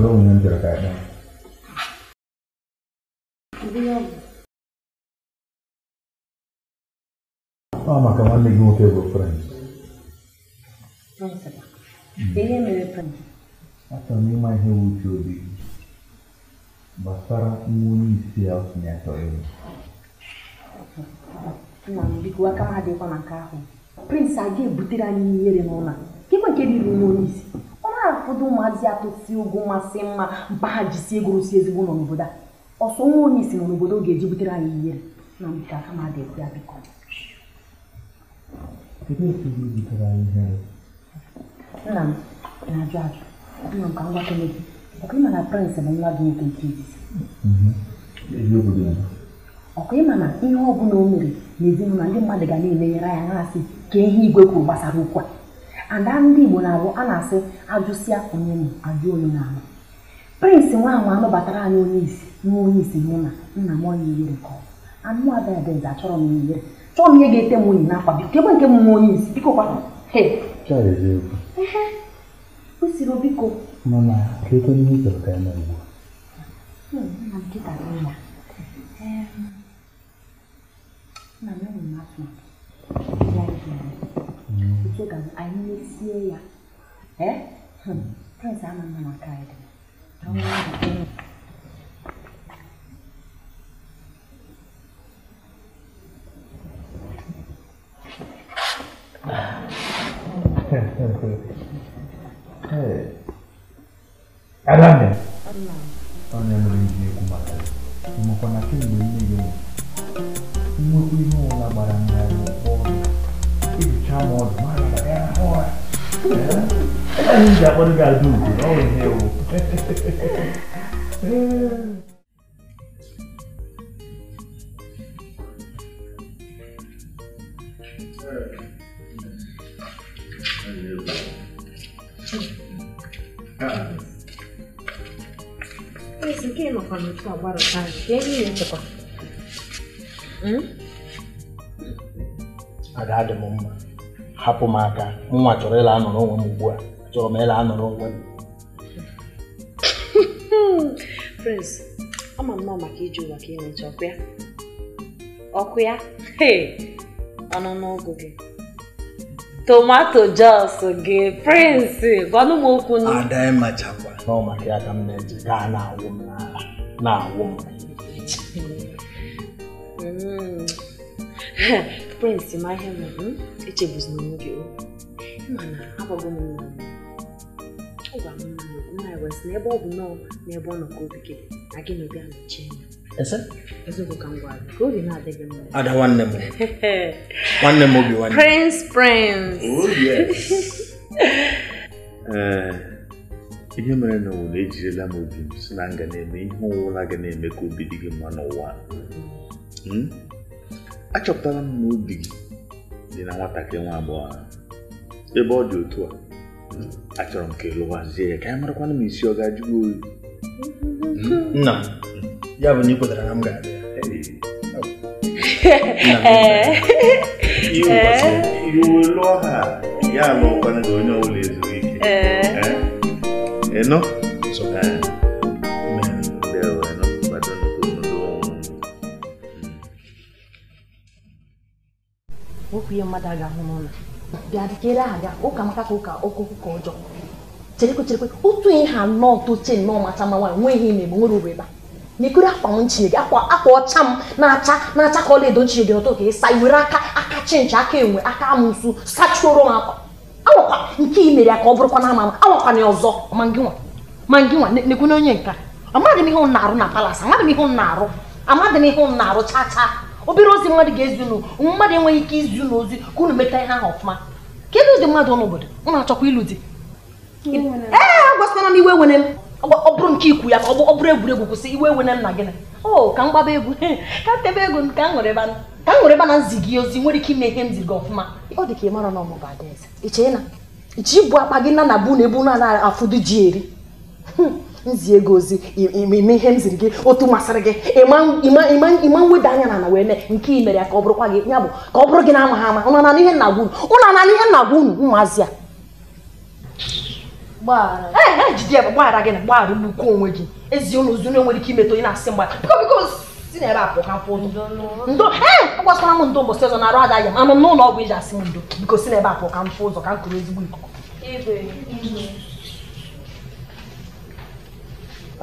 Marlo menyentil kayaknya. maka mandi gue ke gue friends. Ihe mere m ịma ihe wuche obi gbasara nwa onye isi ya ahụ. Prince a ebutere anyị ihere n'ụlọ. Gịkwa isi? afuduma ziatụsi um masị mma mpaghajisi gụrụsi ezigbo ụlọ n'obodo a ọsọ nwa onye isi nọ n'obodo ga-eji butere anyị ihe na mbe aka ma dị ya biko nna m na-ajụ ajụ nna m ka ngwa kele gị ọkụ ịma na prịnsị bụ nwa gị nwoke nke izizi ọkụ ịma na ihe ọ bụla o mere n'ezinụlọ ndị mmadụ ga na-elenyere é anya assim. na-asị ka é ihe igwe kwuru gbasara ukwu a ada ndị Igbo na-abụ a na-asị ajụsịa onye m ajụ onye na-ama Prince nwaanwa anụbatara anyị onye isi nwa onye isi mụ na nna m onye ihere ka ọ anụ abịadịza achọrọ m ihere chọọ m ihe ga-ete m nwunye n'akwa biko ebe nke m nwa onye isi biko kwa o siri biko na ugbu a hmm, 시간 안니시에야 에? 흠, 태사만 하나 가야 돼. 정말 Alame. Ọ̀nà ẹ̀rọ ìdí ẹ̀kú màtà. Ìmọ̀kànnà kí ni mo ní yóò? Nnukwu ihe ụra gbara mmiri m ọdụ. I think that's what we gotta do. Oh, hell. Esse aqui não pode ficar barato. Que é isso, pá? Hum? Agrada, mamãe. hapụ m aka nwa chọrọ ịla anọrọ onwe m ugbu a chọrọ m ịla anọrọ onwe m prince ama m maka iji ụwa ka imecha ọkụ ya ọkụ ya ọnụ n'ụgụ gị tomato jos gị prince gwanụ m okwu nụ ada ịmachakwa na ọ maka ya ka m na-eji gaa na-awụ m n'ala na-awụ m mm. prịnsị ma ihe nwere echebuzina onwe gị mana agwago m nna m ọ gwara m nna nna ya wesị na ebe ọ bụ na ebe ọ nọ ka obi gị na gị na obi anọchie eziokwu ka m gwara gị ka obi na-adị mma ada nwanne m nwanne m obi nwanne prins prins ihe mere na n'ụwa ejirila m obi m si na nga na-eme ihe ọwụla ga na-eme ka obi dị gị mma n'ụwa hmm? achọpụtara m na gị dị na nwatakịrị nwa agbọghọ ahụ ebe ọ dị otu a achọrọ m ka ị lụwazie ya ka anyị marakwana m isi ọ ga-ajụgo oyi hmm? nna ya bụ na ị kwetara na m ga-abịa iwe eh? lụọ ha ya alụọkwana gị onye ọbụla ezuru ike eh? eh? ịnụ ihe mmadụ aga ga-ahụ n'ụlọ bịa dịkere ha ụka maka ka ụka okwu ka ọjọọ cherekwe cherekwe otu ihe ha nọọ toche nnọọ macha mma nwaanyị nwe ihe mgbe nwere uru ebe a nyekere akwa m nchie gị akwa akwa ọcha m na-acha na-acha ka ọlaedo edo nchie dị ọtọ ka ịsa iwere aka aka chinchi aka enwe aka amụsụ sachuoro m akwa awakwa nke i mere ya ka ọ bụrụkwa na ama ama awakwa na ọzọ ma gị nwa onye nka amaghị m ihe ụnụ na-arụ na palas amaghị m ihe ụnụ na-arụ amaghị m ihe ụnụ na-arụ chaa obere ozi mmadụ ga-ezi unu mmadụ enweghị ike izi unu ozi ka unu meta ihe ahụ ọfụma kedu ụdị mmadụ n'obodo unu achọkwa ịlụ di ee agwasịkwana m iwe wene m ọ bụrụ nke ikwu ya ka ọ bụrụ egwuregwu kwụsị iwe wene m na gịnị o ka m gbaba egwu ka tebe ego ka m nwere na nzi gị ozi nwere ike ime ihe m ziri gị ọfụma ọ dị ka ị mara na ọmụ ga-adị iche ji bụ akpa gị na na bụ na ebu na afụdụ ji eri nzie gị ozi ime ihe m ziri gị otu masịrị gị ịma mweda anya na ana wee mee nke i ya ka ọ bụrụkwa gị ya bụ ka ọ bụrụ gị na ama ha ama ụnụ anana ihe nna gwa unu ụnụ anana ihe nna gwa unu ụmụazị a e, jide ya bụ gbaghara gị na gbaghara ugbukwu onwe gị ezi ụlọ ozu nwere ike imetụ onye na-asị mgba biko biko si na ebe a pụọ ndo ee agbasara m ndo mbọsị ọzọ na-arụ ada ya anụ n'ụlọ ọgwụ iji asị m ndo biko si na ebe a pụọ ka m fụ ụzọ ka m kụrụ ezigbo ikuku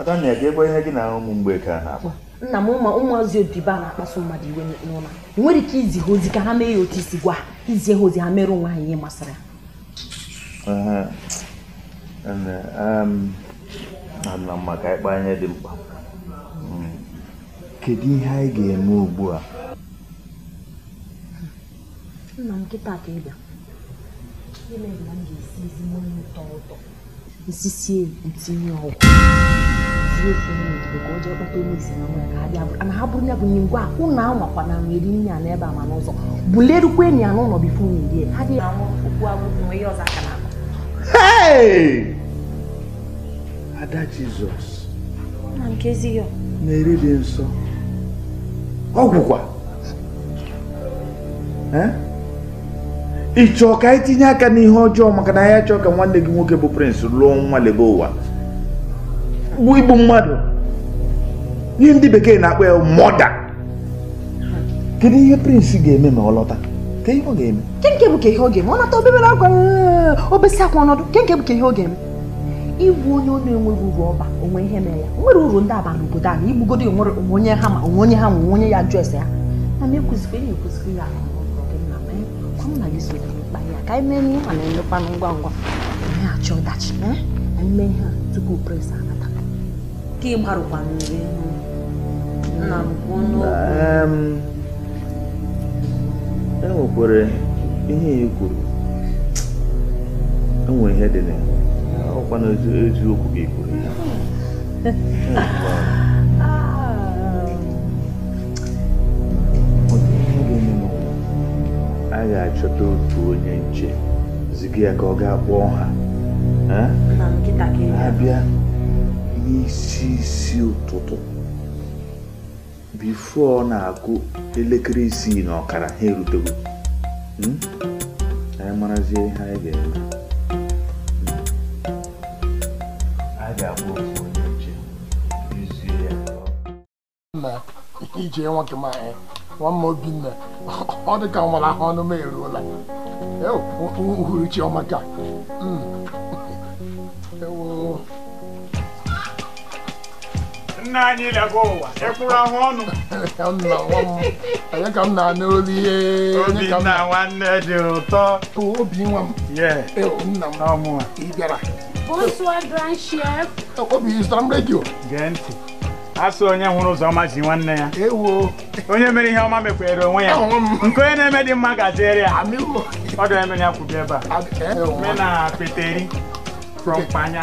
Adanna ga-egwe ihe gị na ahụ ụmụ mgbe ka a na-akpa nna m ụmụ ụmụazị odibo na-akpasu mmadụ iwe n'ụlọ ị nwere ike izi ha ozi ka ha mee ya otu isi gwa izie ha ozi ha mere onwe ha ihe masịrị ha na mma ka anyị dị mkpa hmm. kedu ihe anyị ga-eme ugbu a nna m nkịta ka ịbịa ime m ga-esi ezigbo ụtọ ụtọ isisie ntinye ọgwụ ka ọ jee kpata isi na nwere ka ha bịa na ha bụrụ ya bụ nye ngwa ụnụ ahụ makwa na nweri nne ya n'ebe a ma n'ụzọ bulerukwa enyi ya n'ụlọ bifo nwere ha dị anwụ okwu agwụ nwe ihe ọzọ aka na ada jizọs na-eri dị nsọ ọgwụkwa ị chọọ ka anyị tinye aka n'ihe ọjọọ maka na ya chọọ ka nwanne gị nwoke bụ prince lụọ nwa lebe ụwa bụ igbu mmadụ ihe ndị bekee na-akpọ ya mọda kedu ihe prince ga-eme ma ọ lọta ihe kenke bụ ka ihe ọ ga-eme ọ nata obere akwa obesi akwa ọnọdụ kenke bụ ka ihe ọ ga-eme onye ọ na-enweghị uru ọba onwe ihe mere ya nwere uru ndị aba obodo a na onwe onye ha ma onwe onye ha nwe onye ya jụ ese ya na ya ya ahụ hụ na gị soro mkpa ya ka anyị mee nne ma na-emekwanụ ngwa ngwa anyị achọ ọdachi anyị mee ha tupu pres anata ka ịgbarụkwa mmiri nna m kwuo n'okwu enwekwere ihe ya kwuru enwe ihe dị na ya ọkwa n'eziokwu ga-ekwuru ya ga-achọta otu onye nche ziga ya ka ọ ga kpọọ ha abịa n'isi isi ụtụtụ bifo ọ na-akụ elekere isii na ọkara ha erutego hmm? anyị marazie ihe anyị ga-eme hmm. ga-akpọ otu onye nche izie ya ije nwoke m nwanne Obinna ọ dị ka nwere ahụ ọnụ m eruola uhuruchi ọma ewu. nna ụwa ahụ ọnụ onye ka m na-anụ olu ihe nwanne dị ụtọ obi nwa m nna m ị bịara obi zụtara m redio asị onye hụrụ ọma ji nwanne ya onye mere ihe ọma mekwere onwe ya nke onye na-eme dị mma gajere ya ọ dịra emere ya kwubi ebe a e, e, mena e. peteri frọmpanya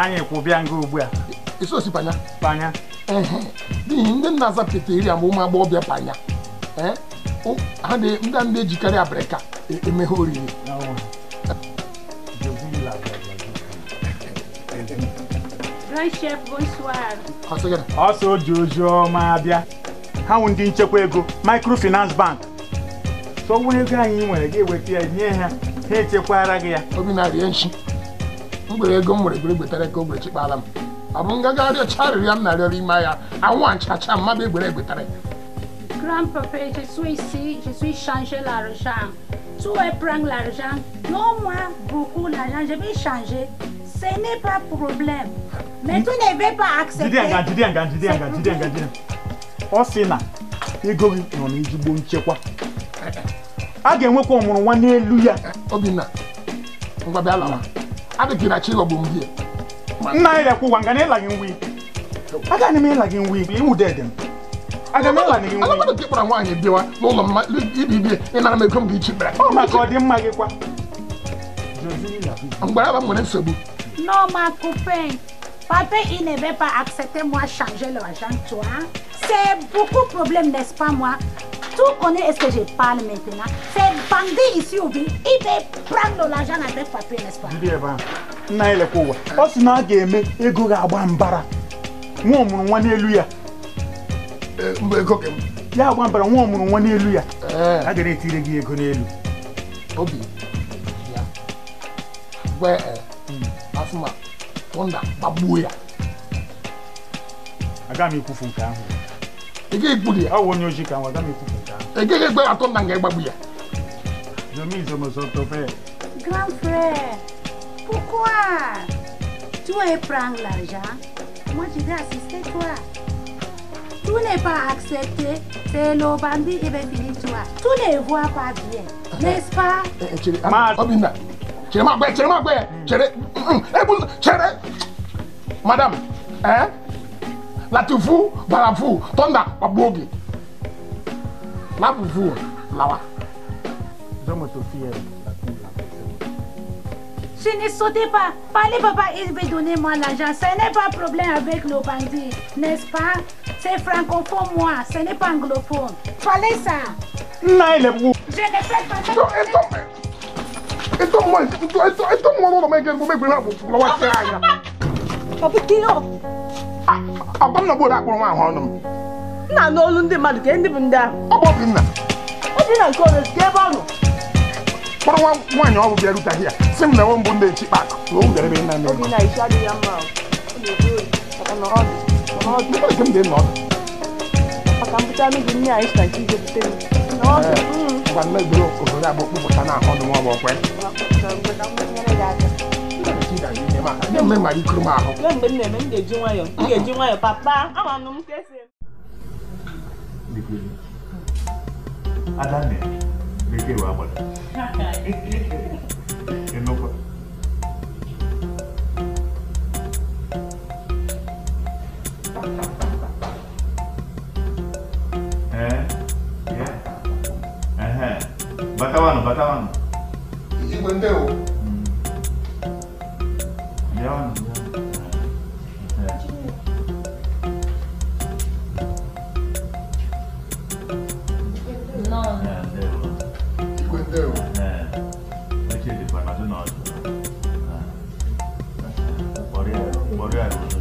anyị kwụbịa nga ugbu a panya n'ihi ndị nna-aza peteri ma ụmụ agbọghọbịa panya ndị a na-ejikarị abịrịka emeghe oriri ọsọ oji oji ọma bịa. ha nwụ ndị nchekwa ego microfinance bank sọwụrụ ego anyị nwere gị eweta ya nye ha ha echekwara gị ya obi na-arịa nshi mgbere ego m nwere gwere gwetara ka ogbe chekpala m ọ bụ nga gaarịọ charịrị ya m na-arịọrọ ime ahịa anwa nchacha mmadụ egwere egwetara Grand-papa, je suis ici, je suis changer l'argent. Tu veux prendre l'argent? Non, moi, beaucoup d'argent, je vais changer. Ce n'est pas problème. Mais tu ne veux pas accepter. Jide nga jide nga jide nga jide nga jide. Ọ sị na ego gị nọ n'ezigbo nchekwa. A ga-enwekwa ọmụrụ nwa n'elu ya. Obinna, ngwa na chi ghọgbu m Nna nga gị nwi. Aga m ịla gị nwi. Alamadụ ka ịkpara nwaanyị bịawa n'ụlọ m Papa, il ne veut pas accepter moi changer l'argent, toi. C'est beaucoup de problèmes, n'est-ce pas, moi Tout connaît est-ce que je parle maintenant. C'est bandit ici au ville. Il veut prendre l'argent avec papa, n'est-ce pas Bien, bien. Na ile kuwa. Osi na ga eme ego ga agba mbara. Nwa omuru nwa n'elu ya. Eh, mbe ego ke. Ya agba mbara nwa omuru nwa n'elu ya. Eh. A ga retire gi ego n'elu. Obi. Ouais, Gwe euh. eh. Hmm. Asuma thunder babuya agami aga m ekwufu nke ahụ ị gaghị egburu ya ọwụ onye ojii ka nwa aga m ekwufu nke ahụ ị gaghị egbe ya thunder nga ịgbagbu ya Grand frère, pourquoi tu veux prendre l'argent Moi, je vais assister toi. Tu n'es pas accepté, c'est le bandit et bien fini toi. Tu ne vois pas bien, n'est-ce pas eh, eh, ma eh, Obina, ma maa gbẹ ma maa gbẹ mm. cere ebun mm, mm. cere madame hein La pas barafu tọnda paboogi labufu lawa. Je ne sautez pas. Parlez, papa, il veut donner moi l'argent. Ce n'est pas problème avec nos bandits, n'est-ce pas C'est francophone, moi. Ce n'est pas anglophone. Parlez ça. Non, il est Je ne fais pas ça. Ito mo, ito, ito, ito mo lolo may gano may gano lawa sa anya. Papa Kino. Abam na bora ko ma hono. Na no lu ndi madu ke ndi bunda. Obo bi na. Obi na ko le ke ba no. Poro wa wa nya obo bia ruta here. Sim na won bunda chi pak. Wo u dere be na no. Obi na isha de yamba. Obi ko. Papa no odi. No odi. Papa kem de no. Papa kam buta mi dunia isha chi de buta. fan mai bro ko ra bo ko tana ho no mo kwe ne me mari kurma ho ne me ne me de jinwa yo de jinwa yo papa ama no mtese dikwe adane beke wa batawan, batawan. Ikwente o. Yawan. No. Ikwente o. Perché ti parla di noi? Fuori aereo, fuori aereo.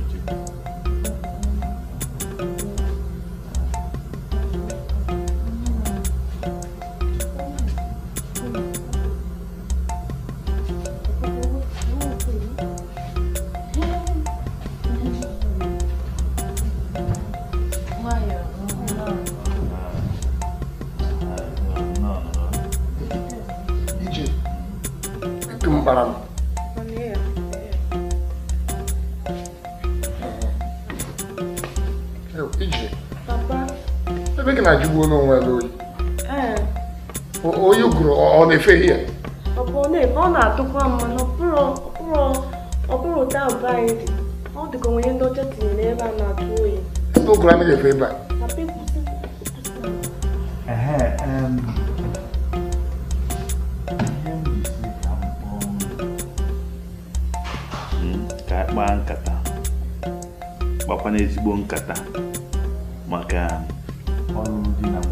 cafe here. Upon it, Mona took one man, Opuro, Opuro, Opuro down by it. All the Ghanaian daughter to never not doing. No climate a favor. Uh, um. ka kpaa nkata gbakwa n'ezigbo nkata maka um, ọrụ dị na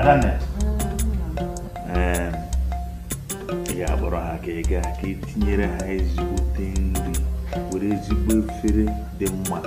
adanne ehm, ị ga-akpọrọ ha ka ị ga ka e tinyere ha ezigbote nri were ezigbo efere dị mma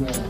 Right.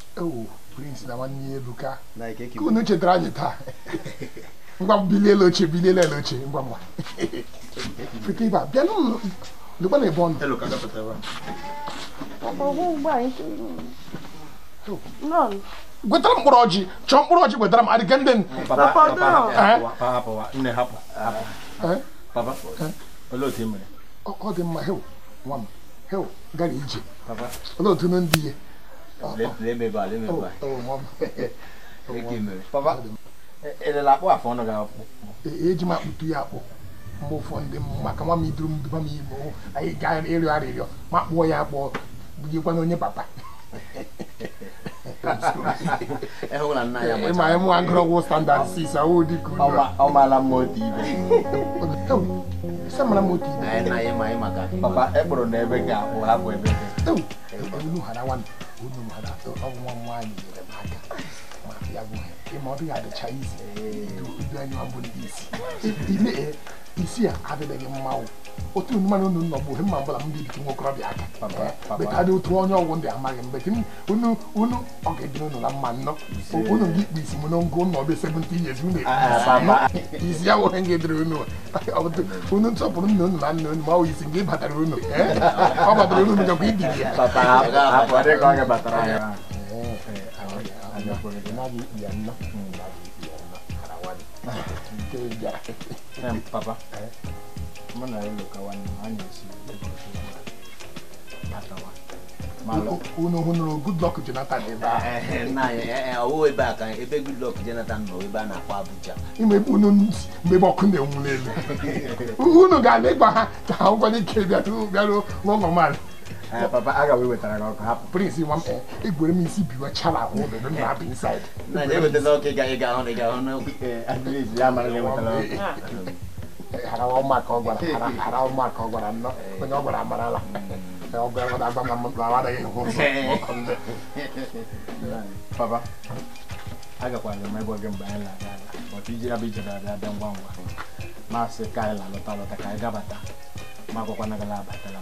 ewu prince na nwanne ya ebuka ka unu chetara anyị taa ngwa bilie oche bilie elu oche ngwa ngwa pụta ibe bịa n'ụlọ lụkwa na ebe ọ nọ gwetara mkpụrụ ọjị chọọ mkpụrụ ọjị gwetara m adịga ndị eh? eh? eh? ọ dị mma hew nwa m hew gara ije olee otu ndị ihe lebe E lebe akpụ eji m akpụtu ya akpụ mgbe ụfọ maka nwa m iduru m duba m ime anyị gaa ịrịọ arịrịọ ma kpụọ ya akpụọ bụjikwana onye papa ịma anyị nwa ngụrọgwụ standard 6 m otu ibe samara m otu ibe papa n'ebe akpụ hapụ ebe ọwụ nwa nwaanyị nyere ya bụ ịma ọ dịghị adịcha izi ndị isi a adịbeghị mmanwụ otu mmanụ unu nọ bụ mma ọbụla m bibi nwa okorobịa aka betadị otu onye ọgwụ ndị amaghị mgbe unu ọ ga-edina na mma nnọ unu gị ikpe isi m na ngụ nọ ya nwere nga edere unu unu nsọpụrụ nna unu na nna unu ma isi ị unu ọ batara unu gakwa papa mana yelo kawan manya si atawa malo uno uno good luck Jonathan eba na eh eh kan ebe good luck Jonathan no eba na kwa Abuja ime uno mbe boku na enwulelu uno ga le gba ha ta ngwa ni ke bia tu bia lo papa aga wetara ọkụ hapụ prince nwa egwere m isi biwa chala ahụ obodo m na-abụ inside mara ọ gwara onye amarala ọkụ papa agakwala m ebe gị mgbe anyị na-aga aga maka iji abụ ije na-abịa ngwa ngwa maasị ka anyị na-alọta alọta ka anyị gabata ma agwakwana gị abatala m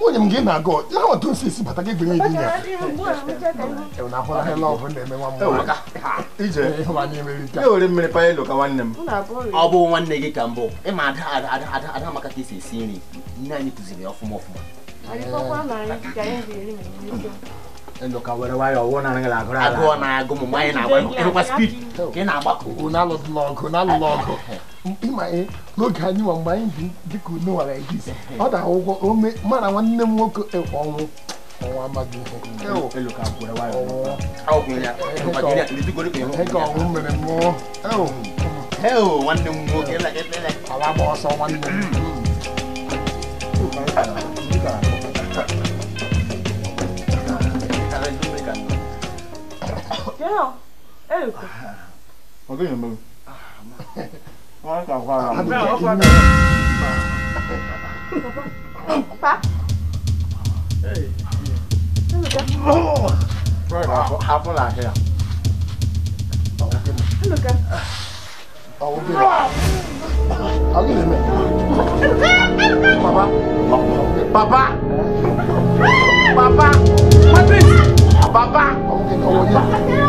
nwunye m gị na agụ ya nweta osi isi bata gị gbenye gị ya na-ahụ na hela nwa m ije ịhụba n'ime rita ewere mmiri panyelo ka nwanne m ọ bụ nwanne gị ka mbụ ịma ada ada ada maka ka esi esi nri nne anyị kụziri ya ọfụma ọfụma ndoka e were wayọ ọwụwa na ngala agụrụ ala agụọ na agụ mụ anyị na-agba ịhụkwa ka ị na-agbakọ n'alụlụ ọgụ n'alụlụ ọgụ mkpi ma n'oge anyị ma mgbe anyị dị ka unu nwara ejizi ọ dị akwụkwọ ome mana nwanne m nwoke ọnwụ ọnwa amaghị ihe ka ọnwụ mere mmụọ ala gba ọsọ nwanne m Genau. Elke. Okay, dann. wọ́n kà fara mọ́. àbúrò ọkọ mi. pa. hapun la hea. Eluka. Awo bi la. Awo bi la. Papa. Papa. Papa. Patrice. Papa. Ọwọ́ yẹn.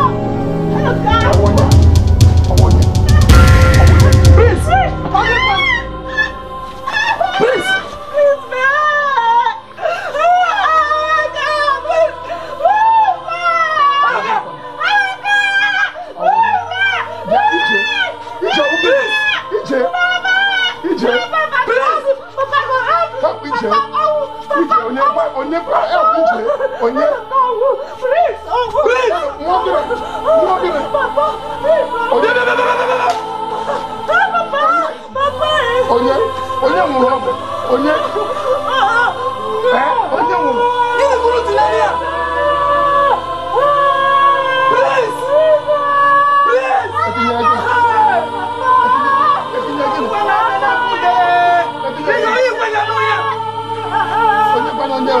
ẹ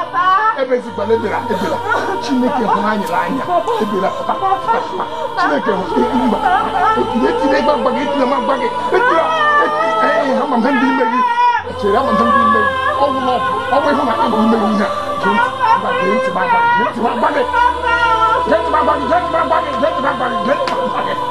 ebe ezigbala ebela ebela chineke hụrụ anyị n'anya ebela pụta pụta chineke hụrụ mba etile etile gbagba gị etile ma gba gị etile ee eh, eh, ha ma ndị ime gị chere ama ndị ime gị ọgwụ na ọgwụ ọgwụ ịhụ na ịbụ ime gị ihe a gee ntị ma gba gị gee ntị ma gba gị gee ntị ma gba gị gee ntị ma gba gị gee ntị ma gba gị gee ntị ma gba gị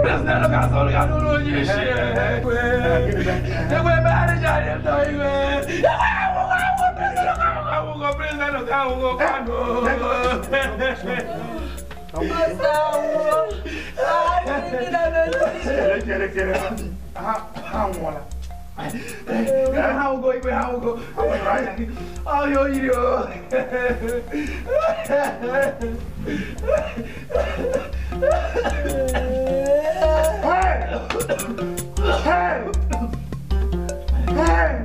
Presidente Gazzolo che hanno lo dice E quei manageri e noi E quei Presidente Gazzolo che hanno lo dice Masawo, ah, ini dah dah dah. Kira kira, ah, ah, mula. 哎，一个哈乌哥，一个哈乌哥，我来，哎呦，一呦，哎，哎，哎。